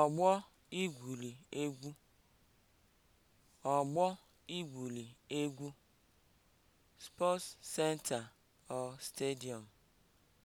ọgbọ igwuli egwu ọgbọ igwuli egwu (sports center or stadium)